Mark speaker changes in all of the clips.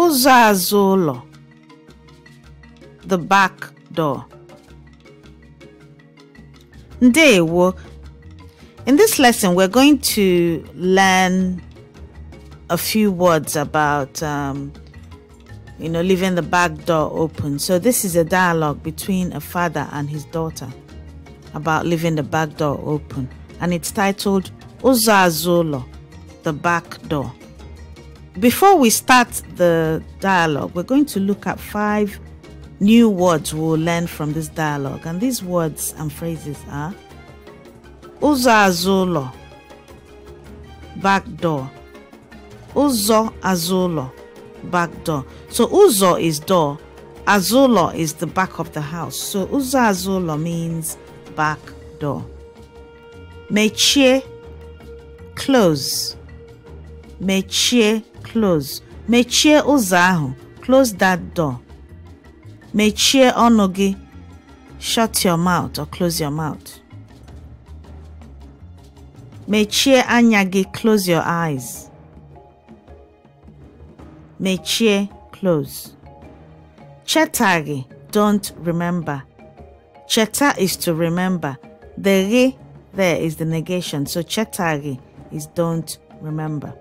Speaker 1: ụzọ azụ ụlọ the back door ndewo in this lesson we're going to learn a few words about um, you know leaving the back door open so this is a dialogue between a father and his daughter about leaving the back door open and it's titled Uzazulo, the back door before we start the dialogue, we're going to look at five new words we'll learn from this dialogue. And these words and phrases are Uzo Azulo, back door. Uzo Azulo, back door. So Uzo is door, Azulo is the back of the house. So Uzo Azulo means back door. Meche, close. Mechie, close. Mechie ụzọ ahụ. Close that door. Mechie ọnụ gị. Shut your mouth or close your mouth. Mechie anya gị. Close your eyes. Mechie close. Cheta gị. Don't remember. Cheta is to remember. The gị there is the negation. So chetari is don't remember.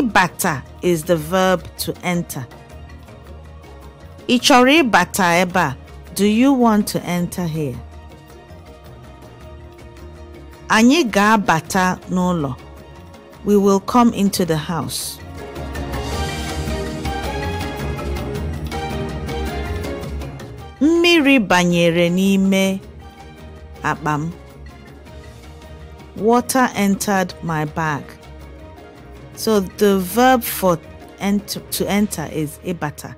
Speaker 1: Ịbata is the verb to enter. Ichori bata eba, Do you want to enter here? Anyị bata nolo, We will come into the house. Mmiri banyere n'ime akpa Water entered my bag. So the verb for to enter is ibata.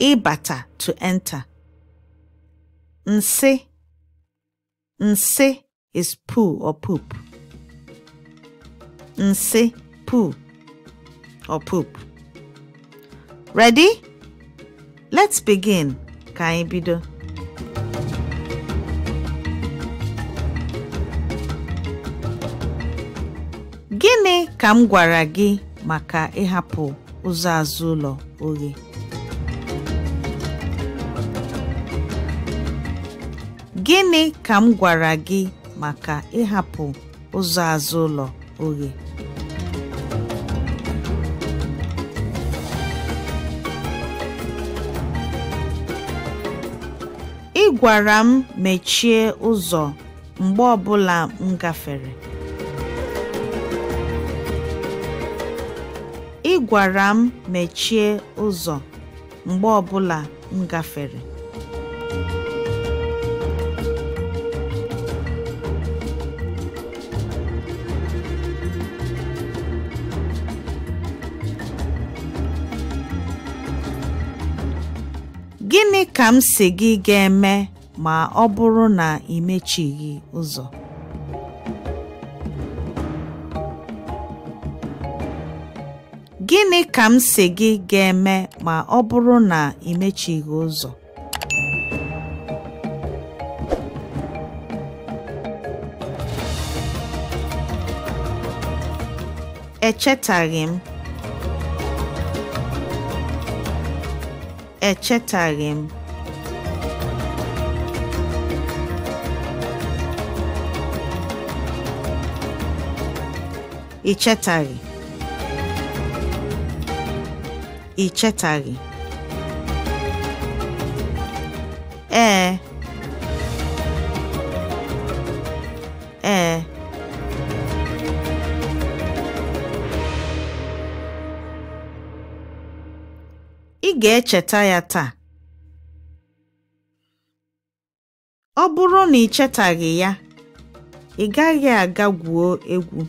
Speaker 1: Ibata to enter. Nse. Nse is poo or poop. Nse, poo or poop. Ready? Let's begin. Kaibido. Gịnị ka m gwara gị maka ịhapụ ụzọ azụ ụlọ oghe? Gịnị ụzọ azụ ụlọ oghe? Ị gwara m mechie ụzọ mgbe ọbụla m gafere. gwara m mechie ụzọ mgbe ọbụla m gafere. Gịnị ka m si gị ga-eme ma ọ bụrụ na ị mechighị ụzọ? gịnị ka m si gị ga-eme ma ọ bụrụ na ị mechighị ụzọ echetaghị m echetaghị m ị chetaghị ị chetaghị ee eh. ee eh. ị ga-echeta ya taa ọ bụrụ na ị chetaghị ya ị gaghị aga gwuo egwu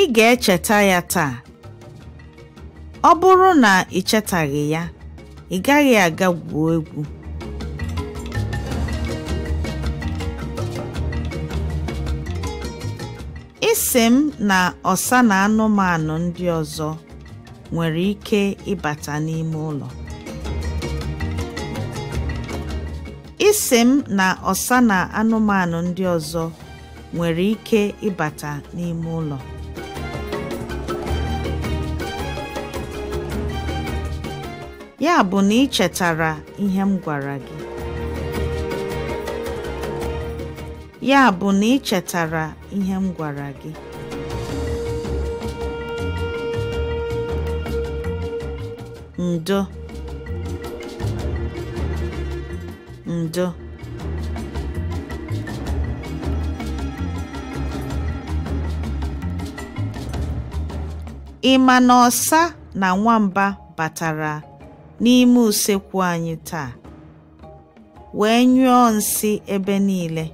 Speaker 1: ị ga-echeta ya taa ọ bụrụ na ị chetaghị ya ị gaghị aga gwuo egwu isi m na ọsa na ọsa na anụmanụ ndị ọzọ nwere ike ịbata n'ime ụlọ ya bụ na ị chetara ihe m gwara gị ya bụ na ndo ndo ị ma na ọsa na nwamba batara n'ime usekwu anyị taa, wee nyụọ nsị ebe niile.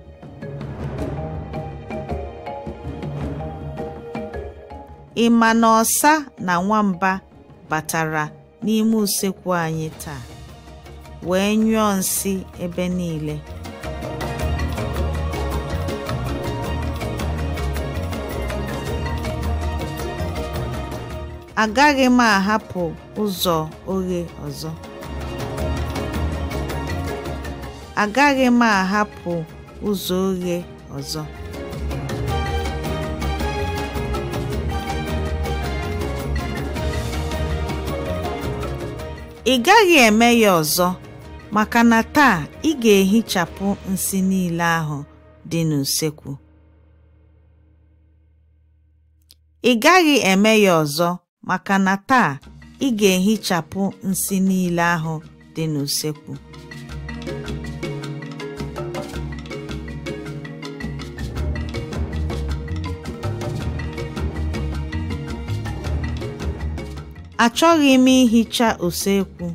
Speaker 1: Ị ma na ọsa na nwamba batara n'ime usekwu anyị taa, wee nyụọ nsị ebe niile. agaghị m ahapụ ụzọ oghe ọzọ agaghị m ahapụ ụzọ oghe ọzọ ị gaghị eme ya ọzọ maka na taa ị ga-ehichapụ nsị niile ahụ dị n'usekwu ị gaghị eme ya ọzọ maka na taa ị ga-ehichapụ nsị niile ahụ dị n'usekwu achọghị m ihicha usekwu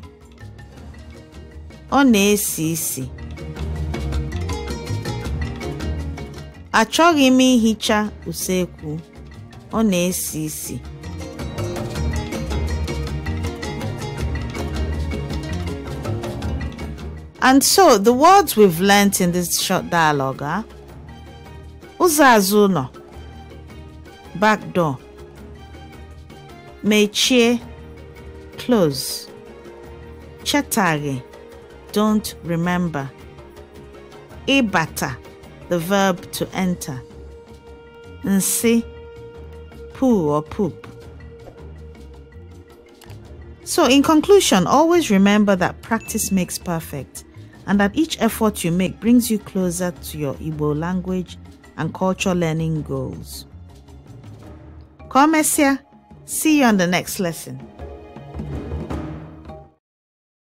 Speaker 1: ọ na-esi isi achọghị m ihicha usekwu ọ na-esi isi And so the words we've learnt in this short dialogue are ah, Uzazuno, back door, Mechie, close, Chetari, don't remember, Ibata, the verb to enter, Nsi, poo or poop. So, in conclusion, always remember that practice makes perfect and that each effort you make brings you closer to your Igbo language and culture learning goals. Come, Messia. See you on the next lesson.